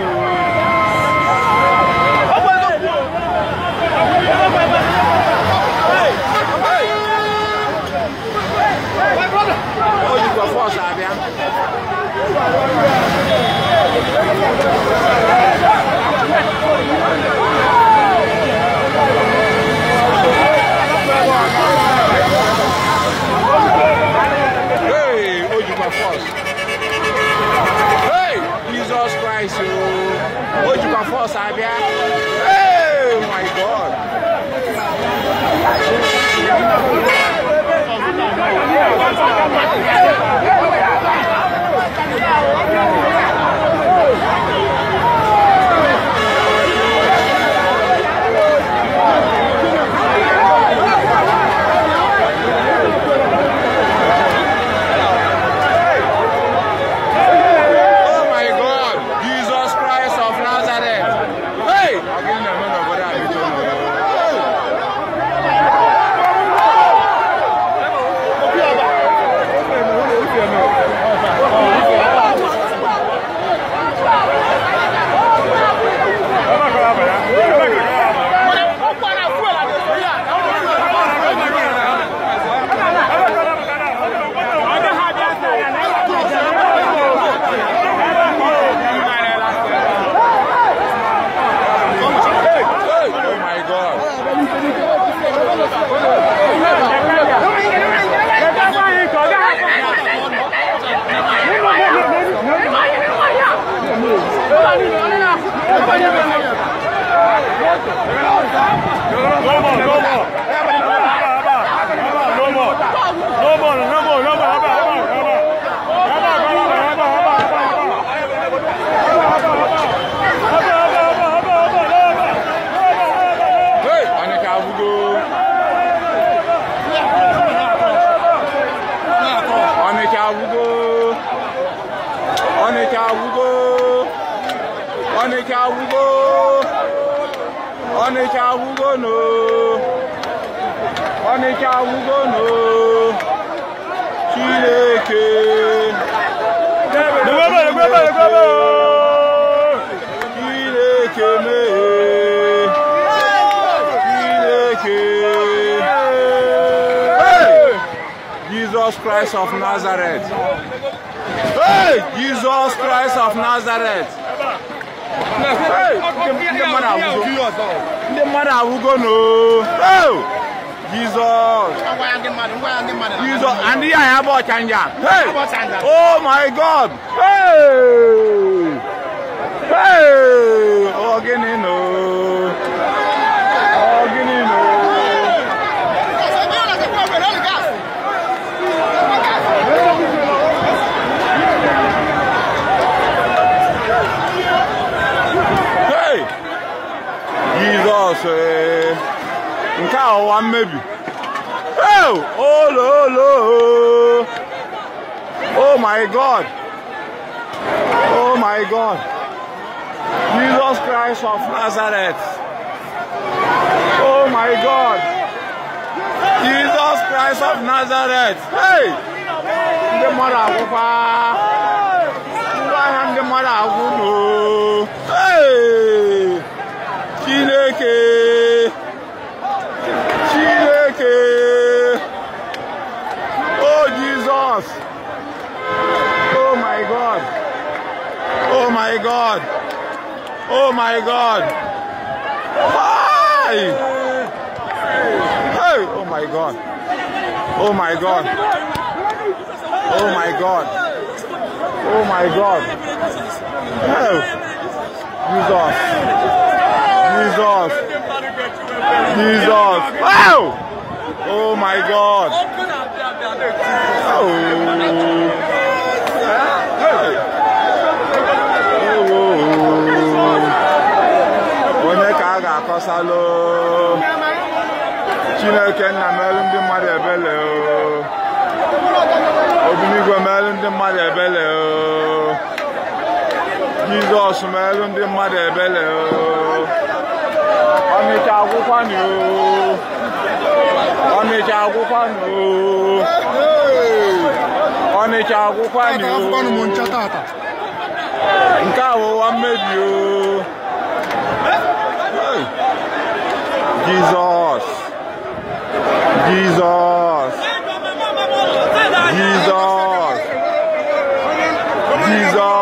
Whoa. 到山边。No, no, no. Go, go, go, go. Ọnịcha agwụgo Ọnịcha agwụgo no Ọnịcha agwụgo no Chineke Chineke mee Chineke Jesus Christ of Nazareth. Hey! Jesus Christ of Nazareth. Hey! mmadụ awụgo Jesus. Jesus. And here I have a Hey. Oh my God. Hey. Hey. Oh, again, no. cross nke a ọwa oh, olo olo oh. oh my god oh my god jesus christ of nazareth oh my god jesus christ of nazareth hey ndị mmadụ agwụkwa ngwa ahịa ndị mmadụ Oh Oh Oh Oh Oh Oh Oh Jesus. my my my my my my God. Oh, God. God. God. God. God. Hi. Hey. Oh my God. Oh, oh, oh Jesus. Jesus. Jesus. Wow! Oh my God. Oh. oh chineke oh merụ ndị mmadụ ebele oh. obiligwe merụ ndị mmadụ ebele oh. jizọs ndị mmadụ ebele oh. ọnịcha agwụkwanụ ọnịcha agwụkwanụ ọnịcha agwụkwanụ nke a ụwa mmebi Jizọs Jizọs Jizọs Jizọs